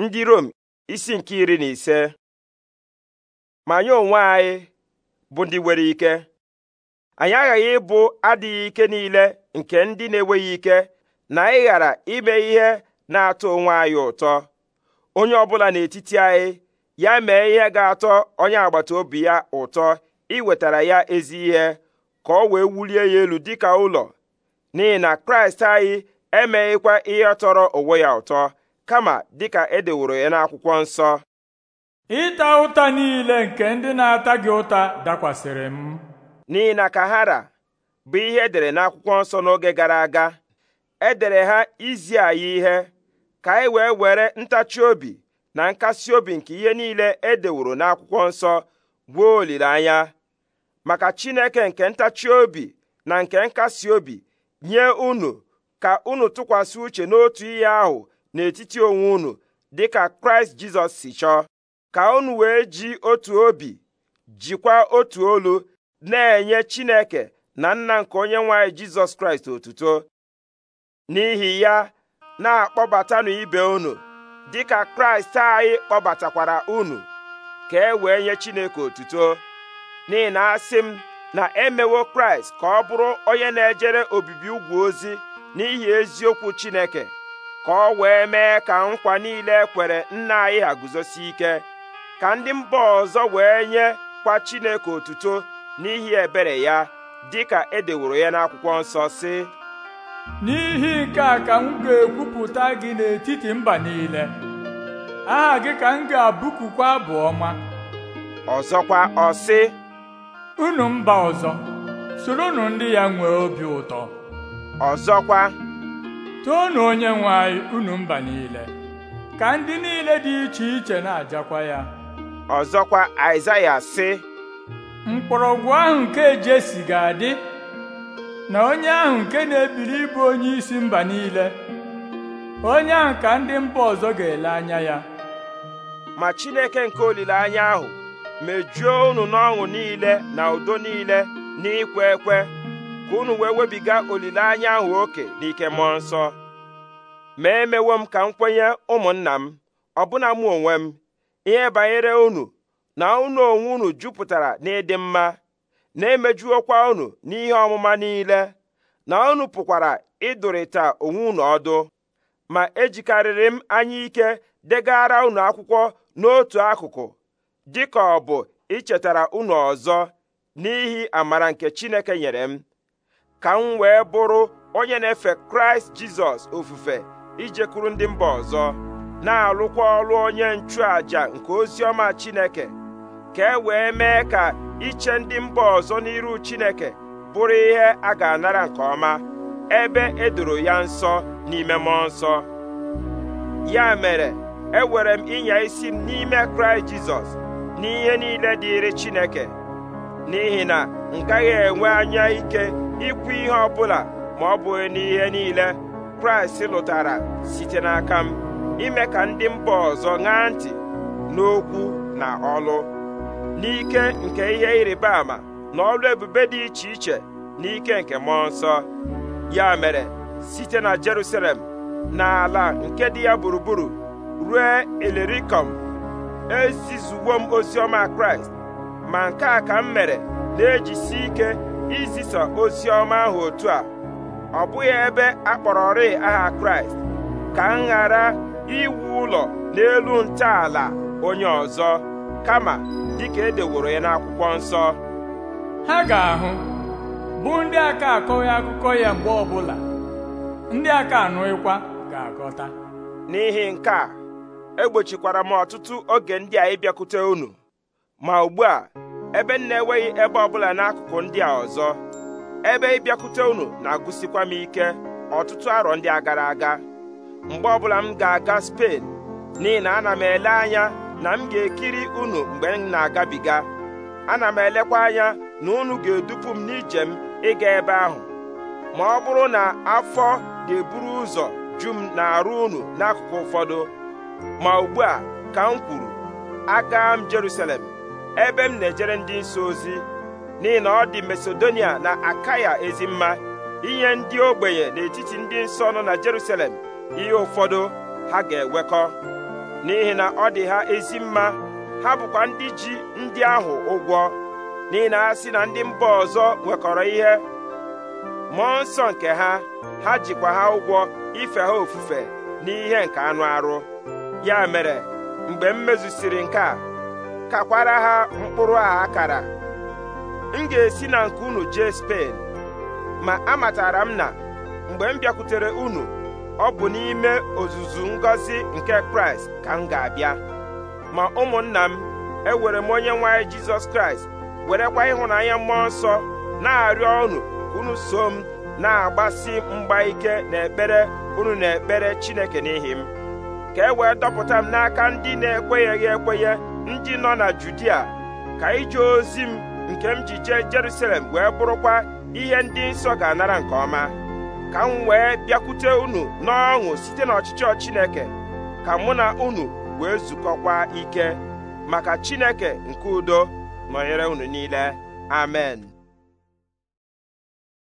ndị Rom isi nke iri na ise ma anyị onwe anyị bụ ndị nwere ike anyị aghaghị ịbụ adịghị ike niile nke ndị na-enweghị ike na anyị ghara ime ihe na-atọ onwe anyị ụtọ onye ọbụla n'etiti anyị ya mee ihe ga-atọ onye agbata obi ya ụtọ iwetara ya ezi ihe ka ọ wee wulie ya elu dịka ụlọ n'ihi na Kraịst anyị emeghịkwa ihe tọrọ onwe ya ụtọ kama dịka edeworo ya n'akwụkwọ nsọ ịta ụta niile nke ndị na-ata gị ụta dakwasịrị m n'ihi na kahara bụ ihe edere n'akwụkwọ nsọ n'oge gara aga edere ha izi anyị ihe ka anyị e wee were ntachi obi na nkasi obi nke ihe niile e deworo n'akwụkwọ nsọ gwuo olileanya maka Chineke nke ntachi obi na nke nkasi obi nye unu ka unu tụkwasị uche n'otu ihe ahụ n'etiti onwe unu dịka kraịst jizọs si chọọ ka unu wee ji otu obi jikwa otu olu na-enye chineke na nna nke onye nwanyị jizọs kraịst otuto n'ihi ya na-akpọbatanụ ibe unu dịka kraịst anyị kpọbatakwara unu ka e wee nye chineke otuto n'ihi na asị m na emewo kraịst ka ọ bụrụ onye na-ejere obibi ugwu ozi n'ihi eziokwu chineke ka ọ wee mee ka nkwa niile ekwere nna anyị ha guzosie ike ka ndị mba ọzọ wee nye kwa Chineke otuto n'ihi ebere ya dị ka e deworo ya n'akwụkwọ nsọ sị n'ihi nke a ka m ga-ekwupụta gị n'etiti mba niile aha gị ka m ga-abụkukwa abụ ọma ọzọkwa ọ sị unu mba ọzọ soronụ ndị ya nwee obi ụtọ ọzọkwa toonu onye nwe anyị mba niile ka ndị niile dị iche iche na-ajakwa ya ọzọkwa Aịzaya sị mkpọrọgwụ ahụ nke Jesi ga-adị na onye ahụ nke na ebiri ịbụ onye isi mba niile onye ahụ ka ndị mba ọzọ ga-ele anya ya ma Chineke nke olileanya ahụ mejuo unu n'ọṅụ niile na udo niile n'ikwe ekwe ka unu wee webiga olileanya ahụ oke n'ike mmụọ nsọ ma emewo m ka m kwenye ụmụnna m ọbụna mụ onwe m ihe banyere unu na unu onwe unu jupụtara n'ịdị mma na-emejuokwa unu n'ihe ọmụma niile na unu pụkwara ịdụrịta onwe unu ọdụ ma ejikarịrị m anya ike degara unu akwụkwọ n'otu akụkụ dịka ọ bụ ichetara unu ọzọ n'ihi amara nke Chineke nyere m ka m wee bụrụ onye na-efe kraịst jizọs ofufe ijekwuru ndị mba ọzọ na-alụkwa ọrụ onye nchụàjà nke ozi ọma chineke ka e wee mee ka iche ndị mba ọzọ n'iru chineke bụrụ ihe a ga-anara nke ọma ebe edoro ya nsọ n'ime mmụọ nsọ ya mere ewere m ịnya isi m n'ime kraịst jizọs n'ihe niile dịrị chineke n'ihi na a ya enwe anya ike ikwu ihe ọbụla bụla ma ọ bụghị n'ihe niile kraịst lụtara site n'aka m ime ka ndị mba ọzọ ṅaa ntị n'okwu na ọlụ n'ike nke ihe ịrịba ama na ọlụ ebube dị iche iche n'ike nke mmụọ nsọ ya mere site na Jerusalem ala nke dị ya gburugburu ruo elerikom ezizuwo m ọma Kraịst ma nke a ka m mere na-ejisi ike izisa ozi ọma ahụ otu a ọ bụghị ebe a kpọrọrị aha kraịst ka m ghara iwu ụlọ n'elu ntọala onye ọzọ kama dịka edeworo ya n'akwụkwọ nsọ ha ga-ahụ bụ ndị aka akọghị akụkọ ya mgbe ọbụla ndị aka anụghịkwa ga-akọta n'ihi nke a egbochikwara m ọtụtụ oge ndị a ịbịakwute unu ma ugbu a ebe m na-enweghị ebe ọbụla n'akụkụ ndị a ọzọ ebe ịbịakwute unu na-agụsikwa m ike ọtụtụ arọ ndị a gara aga mgbe ọbụla m ga-aga Spen n'ihi na ana m ele anya na m ga-ekiri unu mgbe m na-agabiga ana m elekwa anya na unu ga-edupu m n'ije m ịga ebe ahụ ma ọ bụrụ na afọ ga-eburu ụzọ ju m na-arụ unu n'akụkụ ụfọdụ ma ugbu a ka m kwuru aga m Jerusalem ebe m na-ejere ndị nsọ ozi n'ihi na ọ dị Masedonia na Akaya ezi mma inye ndị ogbenye n'etiti ndị nsọ nọ na Jerusalem ihe ụfọdụ ha ga-ewekọ n'ihi na ọ dị ha ezi mma ha bụkwa ndị ji ndị ahụ ụgwọ n'ihi na ha si na ndị mba ọzọ nwekọrọ ihe mmụọ nsọ nke ha ha jikwa ha ụgwọ ife ha ofufe n'ihe nke anụ arụ ya mere mgbe m mezusiri nke a kakwara ha mkpụrụ a akara m ga-esi na nke unu jee Spen ma amatara m na mgbe m bịakwutere unu ọ bụ n'ime ozuzu ngọzi nke Kraịst ka m ga-abịa ma ụmụnna m ewere m onye nwanyị Jizọs Kraịst werekwa ịhụnanya mmụọ nsọ na-arịọ unu unu so m na-agbasi mgba ike n'ekpere unu na-ekpere Chineke n'ihi m ka e wee dọpụta m n'aka ndị na ekwenyeghi ekwenye ndị nọ na Judia ka ije ozi m nke m ji jee Jerusalem wee bụrụkwa ihe ndị nsọ ga-anara nke ọma ka m wee bịakwute unu n'ọṅụ site n'ọchịchọ Chineke ka mụ na unu wee zukọkwa ike maka Chineke nke udo nọnyere unu niile amen